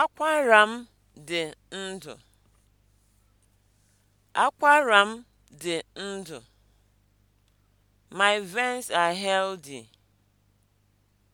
Akwara m dị ndụ. Akwara m dị ndụ. My veins are healthy.